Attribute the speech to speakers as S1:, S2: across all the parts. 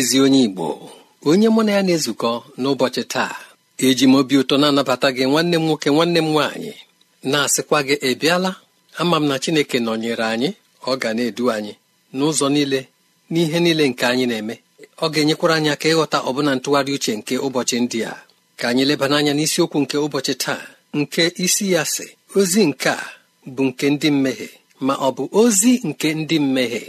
S1: ezi onye igbo onye mụ na ya na-ezukọ n'ụbọchị taa eji m obi ụtọ na-anabata gị nwanne m nwoke nwanne m nwaanyị na-asịkwa gị ị ama m na chineke nọnyere anyị ọ ga na-edu anyị n'ụzọ niile n'ihe niile nke anyị na-eme ọ ga-enyekwara anyị aka ịghọta ọbụna ntụgharị uche nke ụbọchị ndị a ka anyị lebana anya n'isiokwu nke ụbọchị taa nke isi ya si. ozi nke a bụ nke ndị mmehie ma ọ bụ ozi nke ndị mmehie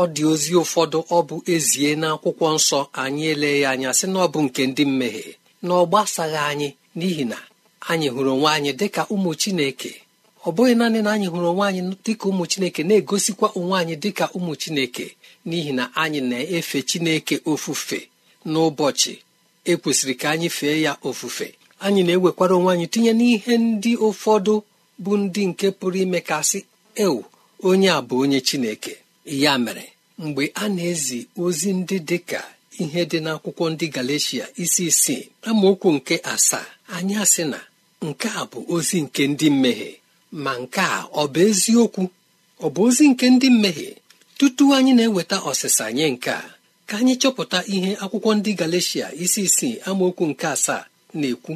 S1: ọ dị ozi ụfọdụ ọ bụ ezie na akwụkwọ nsọ anyị ele ya anya sị na ọ bụ nke ndị mmehie na ọ gbasaghị anyị n'ihi na anyị hụrụ onwe anyị dịka ụmụ chineke ọ bụghị naanị na anyị hụrụ onwe anyị dịka ụmụ chineke na-egosikwa onwe anyị dịka ụmụ chineke n'ihi na anyị na-efe chineke ofufe n'ụbọchị ekwesịrị ka anyị fee ya ofufe anyị na-ewekwara onwe anyị tinye n'ihe ndị ụfọdụ bụ ndị nke pụrụ ime kasị ewu onye a bụ onye chineke ya mere mgbe a na-ezi ozi ndị dị ka ihe dị n'akwụkwọ ndị Galeshia isi isii amaokwu nke asaa anyị asị na nke a bụ ozi nke ndị mmehie ma nke a ọ bụ eziokwu ọ bụ ozi nke ndị mmehie tutu anyị na-eweta ọsịsa nye nke a ka anyị chọpụta ihe akwụkwọ ndị Galeshia isi isii amaokwu nke asaa na-ekwu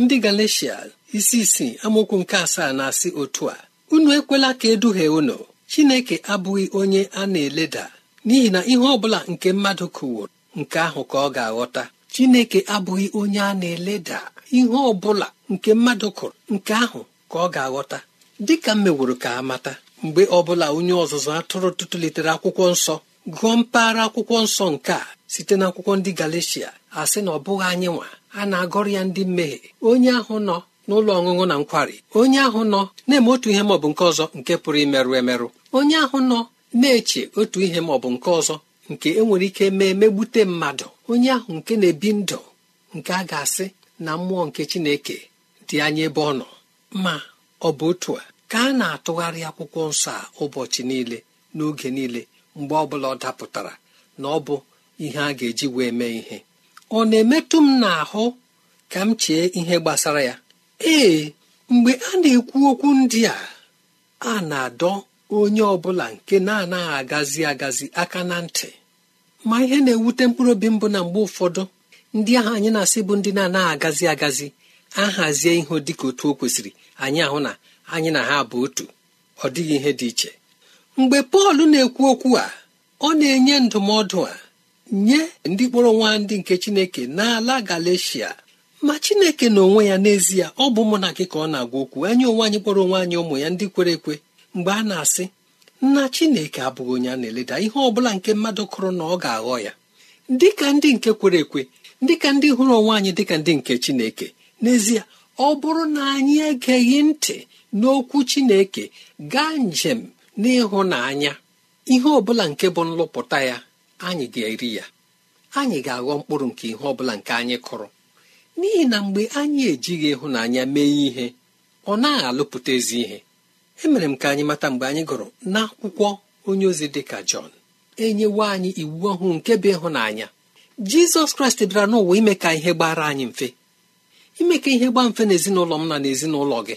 S1: ndị Galeshia isi isii amaokwu nke asaa na-asị otu a unu ekwela ka eduhie unu chineke abụghị onye a na-eleda n'ihi na ihe ọ bụla nke mmadụ kụwụrụ nke ahụ ka ọ ga-aghọta chineke abụghị onye a na-eleda ihe ọ bụla nke mmadụ kụrụ nke ahụ ka ọ ga-aghọta dịka m meworo ka amata mgbe ọ bụla onye ọzụzụ atụrụ tụtụlitere akwụkwọ nsọ gụọ mpaghara akwụkwọ nsọ nke a site n'akwụkwọ ndị galicia a sị na ọ bụghị anyị nwa a na-agọrọ ya ndị mmehie onye ahụ nọ n'ụlọ ọṅụṅụ na nkwari onye ahụ nọ na-eme otu ihe maọbụ nke ọzọ nke pụrụ imerụ emerụ onye ahụ nọ na-eche otu ihe maọbụ nke ọzọ nke enwere ike mee megbute mmadụ onye ahụ nke na-ebi ndụ nke a ga-asị na mmụọ nke chineke dị anya ebe ọ nọ ma ọ bụ otu a ka a na-atụgharị akwụkwọ nsọ a ụbọchị niile n'oge niile mgbe ọ bụla ọ dapụtara na ọ bụ ihe a ga-eji wee mee ihe ọ na-emetụ m n'ahụ ka m chee ihe gbasara ya ee mgbe a na-ekwu okwu ndị a a na-adọ onye ọ bụla nke na-anaghị agazi agazi aka na ntị ma ihe na-ewute mkpụrụ obi mbụ na mgbe ụfọdụ ndị ahụ anyị na-asị bụ ndị na-anaghị agazi agazi ahazie ihe ka otu o kwesịrị anyị ahụ na anyị na ha bụ otu ọ dịghị ihe dị iche mgbe Pọl na-ekwu okwu a ọ na-enye ndụmọdụ a nye ndị kpọrọ nwa ndị nke Chineke n'ala Galeshia ma chineke na onwe ya n'ezie ọ bụ mụ na gị ka ọ na-agwa okwu anyị onwe anyị kpọrọ onwe anyị ụmụ ya ndị kwere ekwe mgbe a na-asị nna chineke abụghị onye a na-eleda ihe ọ bụla nke mmadụ kụrụ na ọ ga-aghọ ya dịka ndị nke kwere ekwe dịka ndị hụrụ onwe anyị dịka ndị nke chineke n'ezie ọ bụrụ na anyị egeghị ntị n'okwu chineke gaa njem n'ịhụnanya ihe ọ bụla nke bụ nlụpụta ya anyị ga-eri ya anyị ga-aghọ mkpụrụ nke ihe ọ bụla nke anyị kụrụ n'ihi na mgbe anyị ejighị ịhụnanya mee ihe ọ naghị ezi ihe emere m ka anyị mata mgbe anyị gụrụ n'akwụkwọ onye ozi dị ka Jọn enyewo anyị iwu ọhụụ nke bụ ịhụnanya Jizọs Kraịst bịara n'ụwa ime ka ihe gbara anyị mfe ime ka ihe gbaa mfe n'ezinụlọ m na n'ezinụlọ gị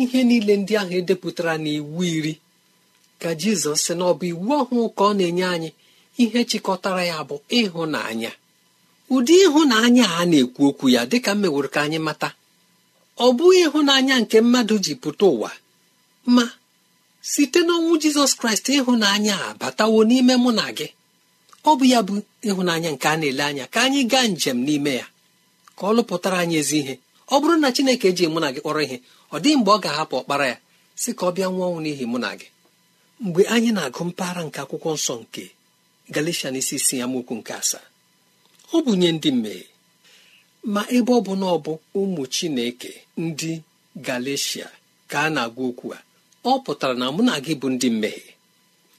S1: ihe niile ndị ahụ edepụtara n'iwu iri ka Jizọs sị na ọ bụ iwu ọhụụ ka ọ na-enye anyị ihe chịkọtara ya bụ ịhụnanya ụdị ịhụnanya a na-ekwu okwu ya dịka m meworo ka anyị mata ọ bụghị ịhụnanya nke mmadụ ji pụta ụwa ma site n'ọnwụ jizọs kraịst ịhụnanya a batawo n'ime mụ na gị ọ bụ ya bụ ịhụnanya nke a na-ele anya ka anyị gaa njem n'ime ya ka ọ lụpụtara anyị ezi ihe ọ bụrụ na chineke eji mụ na gị kpọrọ ihe ọ dịghị mgbe ọ ga-ahapụ ọkpara ya si ka ọ bịa nwụọ ọnwụ n'ihi mụ na gị mgbe anyị na-agụ mpaghara nke akwụkwọ nsọ nke n'isi isi ya mokwu nke asaa ọ bụ nye ndị mmehie ma ebe ọ bụ na ọ bụ ụmụ chineke ndị galecia ka a na-agwa okwu a ọ pụtara na mụ na gị bụ ndị mmehie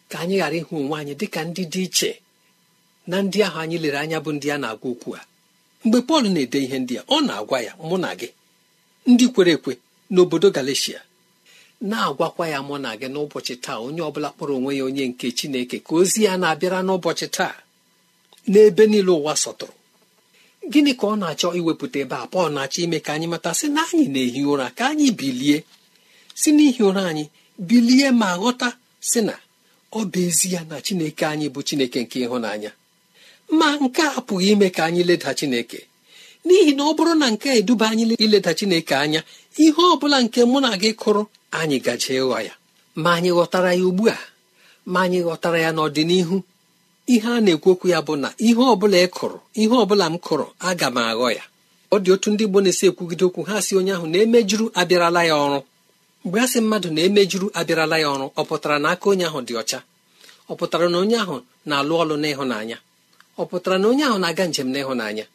S1: ka anyị ghara ịhụ onwe anyị dịka ndị dị iche na ndị ahụ anyị lere anya bụ ndị a na-agwa okwu a mgbe Pọl na-ede ihe ndị a ọ na-agwa ya mụ na gị ndị kwere ekwe n'obodo Galeshia na-agwakwa ya mụ na gị n'ụbọchị taa onye ọ bụla kpọrọ onwe ya onye nke Chineke ka ozi ya na-abịara n'ụbọchị taa n'ebe niile ụwa sọtụrụ gịnị ka ọ na-achọ iwepụta ebe a pọl na-achọ ime ka anyị mata sị na anyị na-ehi ụra ka anyị bilie si n'ihi ụra anyị bilie ma ghọta sị na ọ bụ ezi ya na chineke anyị bụ chineke nke ịhụnanya ma nke a pụghị ime ka anyị leda chineke n'ihi na ọ bụrụ na nke eduba anyị ileda chineke anya ihe ọ bụla nke mụ na gị kụrụ anyị gaje ịghọ ya ma anyị ghọtara ya ugbu a ma anyị ghọtara ya n'ọdịnihu ihe a na ekwu okwu ya bụ na ihe ọbụla ị kụrụ ihe ọbụla m kụrụ aga m aghọ ya ọ dị otu ndị Igbo na-esi ekwugide okwu ha si onye ahụ na-emejuru abịarala ya ọrụ mgbe a sị mmadụ na-emejuru abịarala ya ọrụ ọ pụtara na aka onye ahụ dị ọcha ọ pụtara na onye ahụ na-alụ ọlụ n'ịhụnanya ọ pụtara na onye ahụ na-aga njem n'ịhụnanya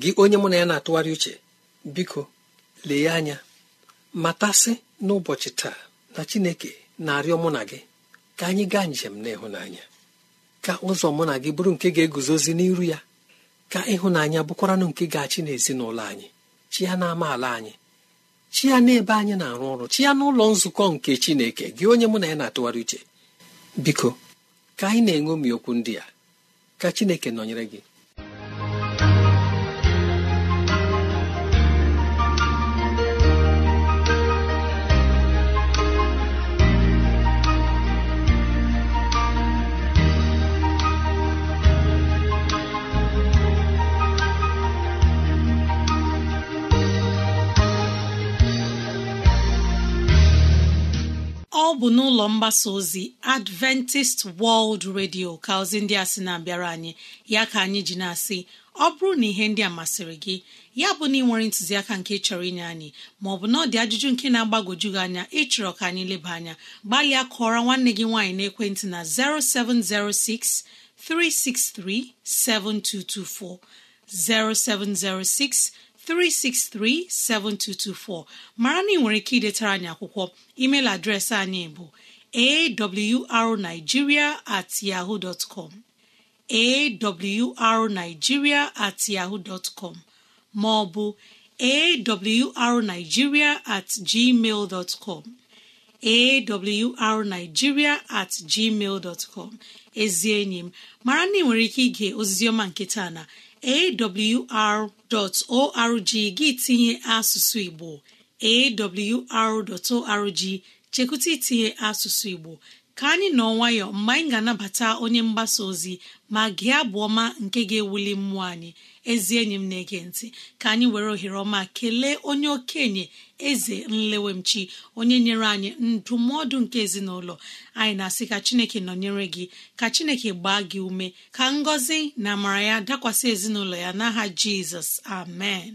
S1: gị onye mụ na ya na-atụgharị uche biko lee anya matasị n'ụbọchị taa na Chineke na-arịọ mụ na gị ka anyị gaa njem n'ịhụnanya ka ụzọ mụ na gị bụrụ nke ga-eguzozi n'iru ya ka ịhụnanya bụkwaranụ nke ga-achị n'ezinụlọ anyị chi ya ala anyị chi ya n'ebe anyị na-arụ ọrụ chi ya n'ụlọ nzukọ nke chineke gị onye mụ na ya na-atụgharị uche biko ka anyị na enwe okwu ndị a ka chineke nọnyere gị
S2: bụ n'ụlọ mgbasa ozi adventist world radio ka ozi ndị a sị na-abịara anyị ya ka anyị ji na-asị ọ bụrụ na ihe ndị a masịrị gị ya bụ na ị nwere ntụziaka nke chọrọ inye anyị maọbụ na ọ dị ajụjụ nke na-agbagoju gị anya ịchọrọ ka anyị leba anya gbalịa kọọrọ nwanne gị nwaanyị na 0706 363 7224 363-7224 mara na ị nwere ike idetara anyị akwụkwọ email adreesị anyị bụ awrnigeria at at com ma ọ bụ awrnigeria at gmail at gmail ezi enyi m mara na ị nwere ike ige ozizioma nke taa na awr.org gị tinye asụsụ Igbo awr.org chekwụta itinye asụsụ Igbo ka anyị nọ nwayọ mgbe anyị ga-anabata onye mgbasa ozi ma gị abụ ọma nke ga-ewuli mmụọ anyị ezi enyi m na-ege ntị ka anyị were ohere ọma kelee onye okenye eze nlewemchi onye nyere anyị ndụmọdụ nke ezinụlọ anyị na-asị ka chineke nọnyere gị ka chineke gbaa gị ume ka ngọzi na amara ya dakwasị ezinụlọ ya n'aha jizọs amen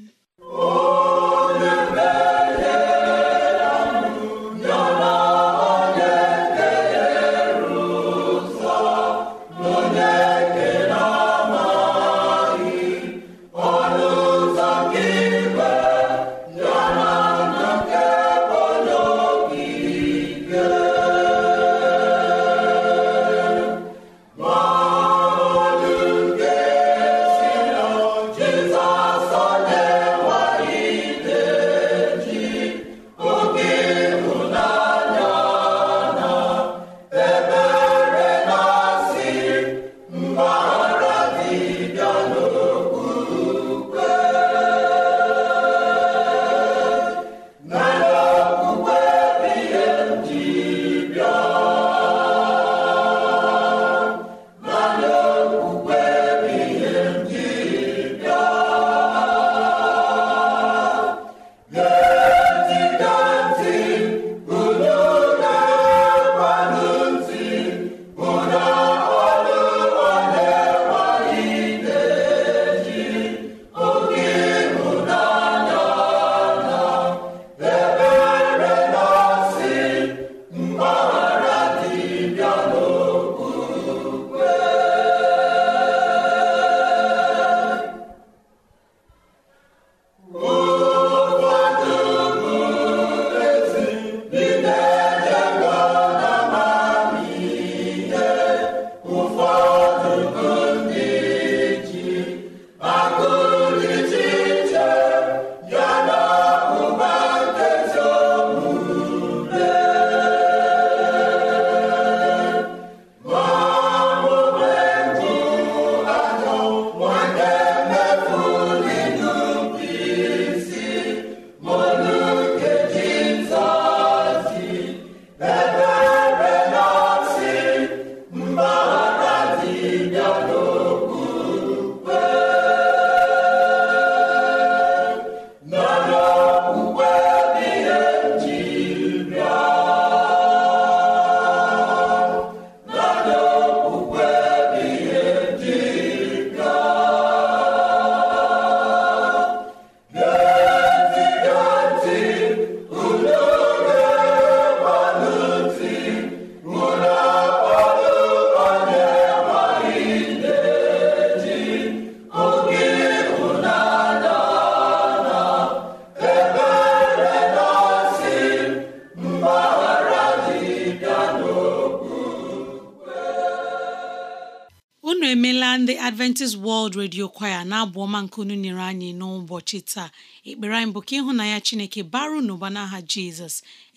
S2: redio kwaya na-abụ ọma nke unu nyere anyị n'ụbọchị taa ekpere anyị bụ ka ịhụnanya chineke baru n'ụba n'aha jizọs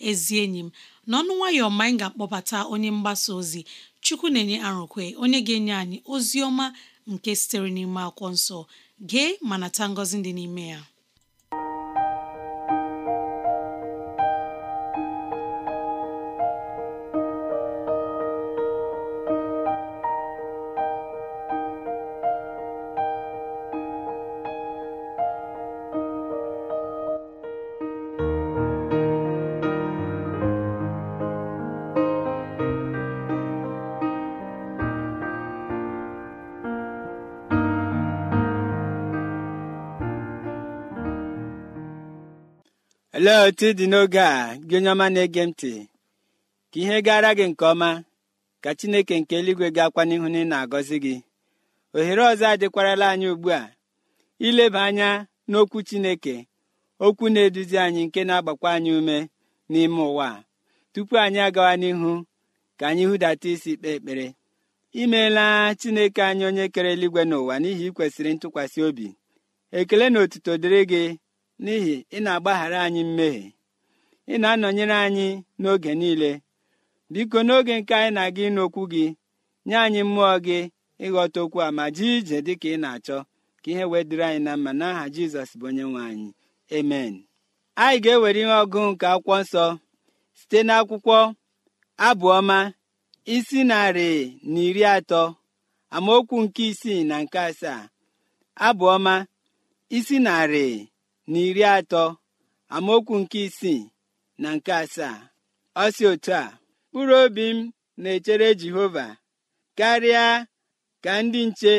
S2: ezi enyi m n'ọnụ nwayọ ma anyị ga-akpọbata onye mgbasa ozi chukwu na-enye arụkwe onye ga-enye anyị ozi ọma nke sitere n'ime akwụkwọ nsọ gee ma nata ngọzi dị n'ime ya
S3: olee otu ị dị n'oge a gị onye ọma na-ege m ntị ka ihe gara gị nke ọma ka chineke nke eluigwe ga-akwa n'ihu na ị na-agọzi gị ohere ọzọ adịkwarala anyị ugbu a ileba anya n'okwu chineke okwu na-eduzi anyị nke na-agbakwa anyị ume n'ime ụwa tupu anyị agawa n'ihu ka anyị hụdata isi kpee ekpere imeela chineke anyị onye kere eluigwe n'ụwa n'ihi ikwesịrị ntụkwasị obi ekele na otuto dịrị gị n'ihi ị na-agbaghara anyị mmehie ị na-anọnyere anyị n'oge niile biko n'oge nke anyị na-aga ịnụ okwu gị nye anyị mmụọ gị ịghọta okwu a ma jee ije dị ka ị na-achọ ka ihe wee dịrị anyị na mma n'aha jizọs bụ onye nwe anyị amen anyị ga-ewere ihe ọgụ nke akwụkwọ nsọ site n'akwụkwọ abụọma isi narị na iri atọ amaokwu nke isii na nke asaa abụọma isi narị na iri atọ amaokwu nke isii na nke asaa ọ si otu a mkpụrụ obi m na-echere jehova karịa ka ndị nche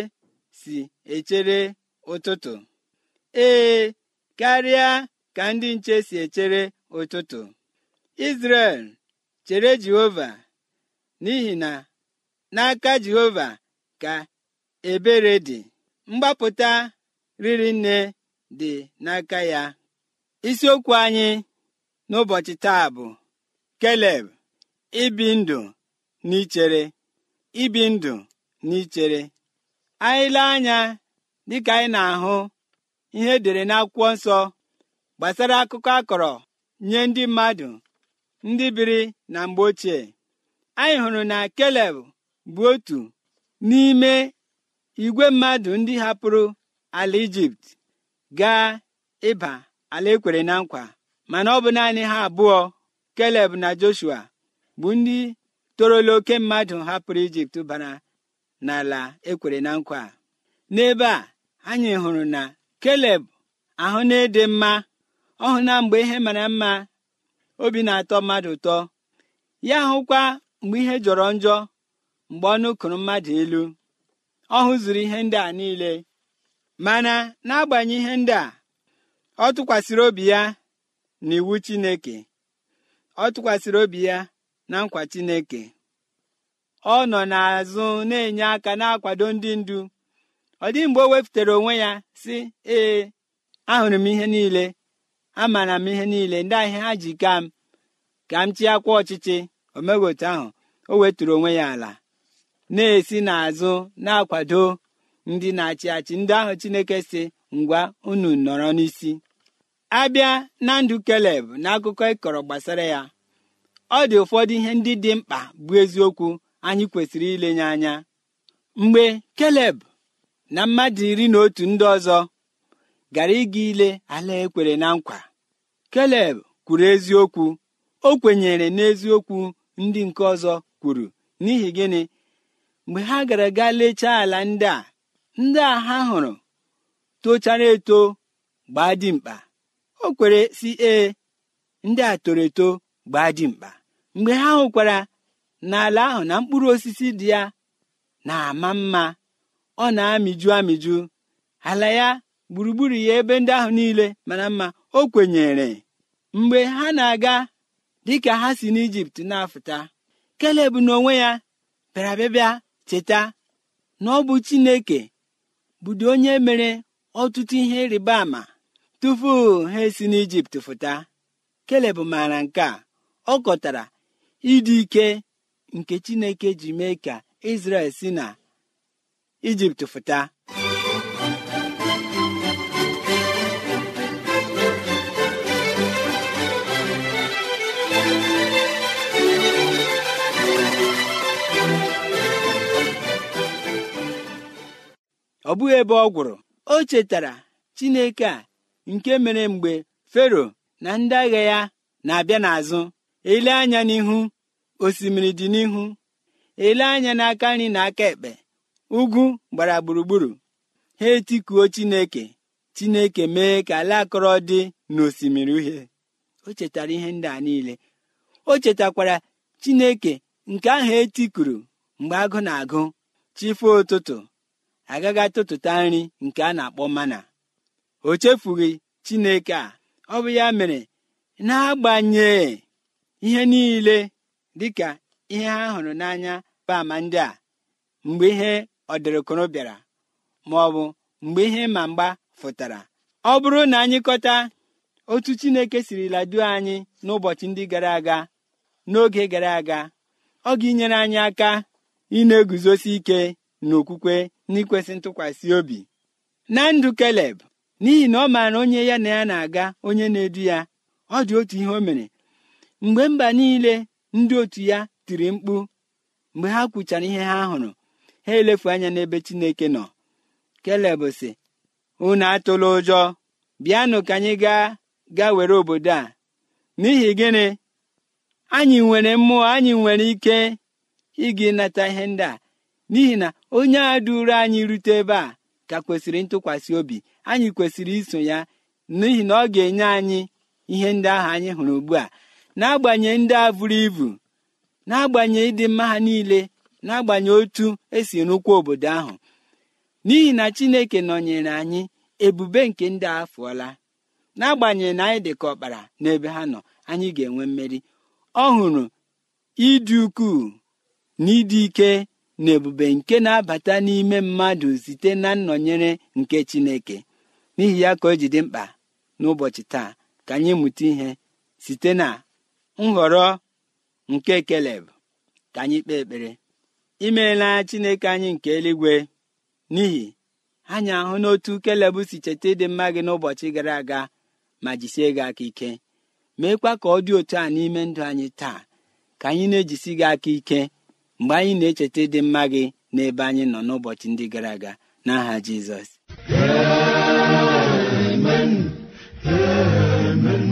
S3: si echere ụtụtụ ee karịa ka ndị nche si echere ụtụtụ izrel chere jehova n'ihi na n'aka jehova ka ebere dị mgbapụta riri nne dị n'aka ya isiokwu anyị n'ụbọchị taa bụ keleb ibi ndụ ichere ibi ndụ n'ichere ichere anya dịka anyị na-ahụ ihe edere n'akwụkwọ nsọ gbasara akụkọ akọrọ nye ndị mmadụ ndị biri na mgbe ochie anyị hụrụ na keleb bụ otu n'ime igwe mmadụ ndị hapụrụ ala ijipt gaa ịba ala ekwere na nkwa mana ọ bụ naanị ha abụọ keleb na joshua bụ ndị torola oke mmadụ hapụrụ ijipt bara n'ala ekwere na nkwa n'ebe a anyị hụrụ na keleb ahụ na-ede mma ọ na mgbe ihe mara mma obi na-atọ mmadụ ụtọ ya hụkwa mgbe ihe jọrọ njọ mgbe ọ nụkụrụ mmadụ elu ọ hụzuru ihe ndị a niile mana n'agbanyeghị ihe ndị a ọ tụkwasịrị obi ya na iwu chineke ọ tụkwasịrị obi ya na nkwa chineke ọ nọ n'azụ na-enye aka na-akwado ndị ndu ọ dịghị mgbe o wepụtara onwe ya si ee ahụrụ m ihe niile amara m ihe niile ndị ahịa ha ji ka m ka m ọchịchị omeghị ahụ o weturu onwe ya ala na-esi n'azụ na-akwado ndị na-achị achị ndị ahụ chineke si ngwa unu nọrọ n'isi abịa na ndụ keleb na akụkọ ịkọrọ gbasara ya ọ dị ụfọdụ ihe ndị dị mkpa bụ eziokwu anyị kwesịrị ilenye anya mgbe keleb na mmadụ iri na otu ndị ọzọ gara ịga ile ala ekwere na nkwa keleb kwuru eziokwu o kwenyere n'eziokwu ndị nke ọzọ kwuru n'ihi gịnị mgbe ha gara gaa lechaa ala ndị a ndị a ha hụrụ tochara eto gbaa dimkpa o kwere si ee ndị a toro eto gbaa dimkpa mgbe ha hụkwara n'ala ahụ na mkpụrụ osisi dị ya na-ama mma ọ na-amịju amịju ala ya gburugburu ya ebe ndị ahụ niile mana mma o kwenyere mgbe ha na-aga dịka ha si n'ijipt na-afụta keleb n'onwe ya bịara bịa cheta na ọ bụ chineke bụdị onye mere ọtụtụ ihe ịrịba ama tupu ha esi n'ijipt fụta keleb maara nke a ọ kọtara ịdị ike nke chineke ji mee ka israel si na ijipt fụta ọ bụghị ebe ọ gwụrụ o chetara chineke a nke mere mgbe fero na ndị agha ya na-abịa n'azụ ele anya n'ihu osimiri dị n'ihu ele anya n'aka nri na aka ekpe ugwu gbara gburugburu ha etikuo chineke chineke mee ka ala akọrọ dị n'osimiri uhie o chetara ihe ndị a niile o chetakwara chineke nke ahụ etikuru mgbe agụ na-agụ chife ụtụtụ agaghị atụtụta nri nke a na-akpọ mana o chefughị chineke a ọ bụ ya mere na-agbanye ihe niile dịka ihe ha hụrụ n'anya bama ndị a mgbe ihe ọdịrịkụrụ bịara ma ọ bụ mgbe ihe ma mgba fụtara ọ bụrụ na anyị kọta otu chineke sirila duo anyị n'ụbọchị ndị gara aga n'oge gara aga ọ ga-inyere anyị aka ị na-eguzosi ike na okwukwe n'ikwesị ntụkwasị obi na ndụ keleb n'ihi na ọ maara onye ya na ya na-aga onye na-edu ya ọ dị otu ihe o mere mgbe mba niile ndị otu ya tiri mkpu mgbe ha kwuchara ihe ha hụrụ ha elefu anya n'ebe chineke nọ keleb sị unu atụla ụjọ bịanụ ka anyị gaa gaa were obodo a n'ihi gịnị anyị nwere mmụọ anyị nwere ike ịga ịnata ihe ndị a n'ihi na onye a duru anyị rute ebe a ka kwesịrị ntụkwasị obi anyị kwesịrị iso ya n'ihi na ọ ga-enye anyị ihe ndị ahụ anyị hụrụ ugbu a n'agbanyeghị ndị a vụrụ ibu n'agbanyeghị ịdị mma ha niile n'agbanyeghị otu esi rụkwa obodo ahụ n'ihi na chineke nọnyere anyị ebube nke ndị a fụọla n'agbanyeghị na anyị dị ka ọkpara n'ebe ha nọ anyị ga-enwe mmeri ọ hụrụ ịdị ukwuu na ịdị ike na ebube nke na-abata n'ime mmadụ site na nnọnyere nke Chineke n'ihi ya ka o ji dị mkpa n'ụbọchị taa ka anyị mụta ihe site na nhọrọ nke Keleb ka anyị kpee ekpere imeela Chineke anyị nke eluigwe n'ihi anyị ahụ n'otu Keleb si cheta ịdị mma gị n'ụbọchị gara aga ma jisie gị aka ike meekwa ka ọ dị otu a n'ime ndụ anyị taa ka anyị na-ejisi gị aka ike mgbe anyị na-echeta ịdị mma gị n'ebe anyị nọ n'ụbọchị ndị gara aga n'aha jizọs
S4: Amen. Amen.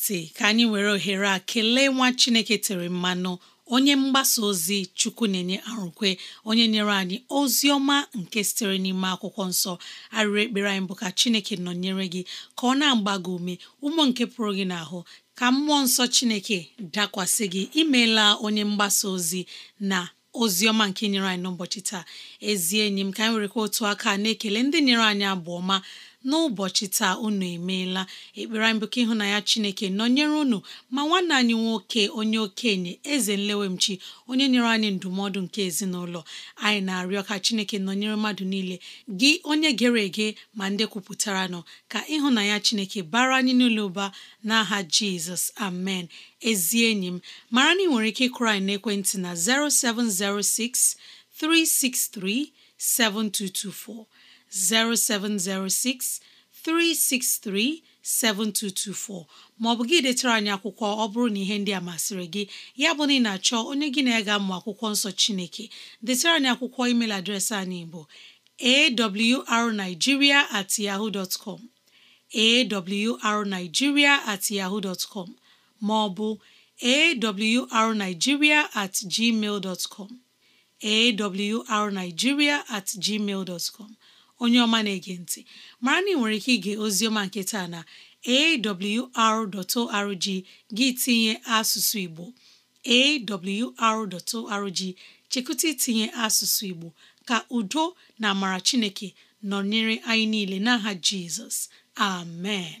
S2: ntị ka anyị were ohere a kelee nwa Chineke tere mmanụ onye mgbasa ozi chukwu na-enye arụkwe onye nyere anyị ozi ọma nke sitere n'ime akwụkwọ nsọ arịrị ekpere anyị bụ ka chineke nọnyere gị ka ọ na-agba gị ume ụmụ nke pụrụ gị n'ahụ ka mmụọ nsọ chineke dakwasị gị imeela onye mgbasa ozi na ozi ọma nke nyere anyị n'ụbọchị taa ezi enyi m ka anyị werekwa otu aka na-ekele ndị nyere anyị abụ ọma n'ụbọchị taa unu emeela ekpere anyị bụ ka Chineke nọnyere unu ma nwanne anyị nwoke onye okenye eze nlewemchi onye nyere anyị ndụmọdụ nke ezinụlọ anyị na-arịọ ka Chineke nọnyere mmadụ niile gị onye gere ege ma ndị kwupụtara nọ ka ịhụnanya Chineke bara anyị n'ụlọ ụba n'aha Jizọs amen ezi enyi m mara na ị nwere ike ịkụrụ anyị n'ekwentị na 0706 363 7224 0706 363 7224 maọbụ gị detara anyị akwụkwọ ọ bụrụ na ihe ndị a masịrị gị ya bụ na ị na-achọ onye gị na ega ga akwụkwọ nsọ Chineke detara anyị akwụkwọ email adreesị anyị bụ arigiria at yahoo dot com awrnigeria at yahoo com maọbụ awrnigeria at gmail com awrnigeria at gmail com onye ọma na-ege ntị mara na ị nwere ike ige ozioma nke taa na awr.org gị tinye asụsụ Igbo awr.org chekụta itinye asụsụ Igbo ka udo na amara Chineke nọnyere anyị niile n'aha Jizọs amen